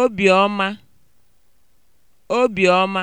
obiọma obiọma